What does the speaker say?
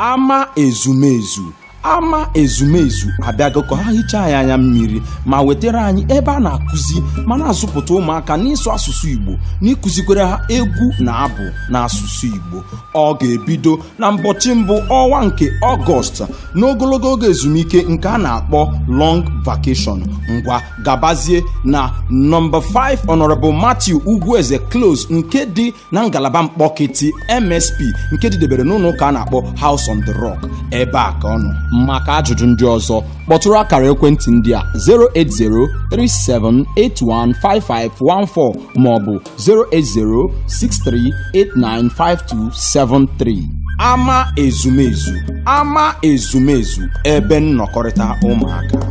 ama ezumezu ama ezumezu abịago ka ha hichaa anyị anya mmiri ma wetara anyị ebe a na-akụzi ma na-azụpụta ụmụaka n'ịsụ asụsụ Igbo n'ịkụzikwere ha egwu na abụ na asụsụ Igbo ọ ga-ebido na mbọchị mbụ ọnwa nke Ọgọst n'ogologo oge ezumike nke a na-akpọ long vakeshọn ngwa gabazie na nọmba 5 Honorable Matthew Ugwueze Close nke dị na ngalaba mkpọkịtị MSP nke dịdebere n'ụlọ ụka a na-akpọ House on the Rock ebe a ka ọnụ maka ajụjụ ndị ọzọ kpọtụrụ akara ekwentị ndị a 08037815514 maọbụ 08063895273 ama ezumezu ama ezumezu ebe nnọkọrịta ụmụaka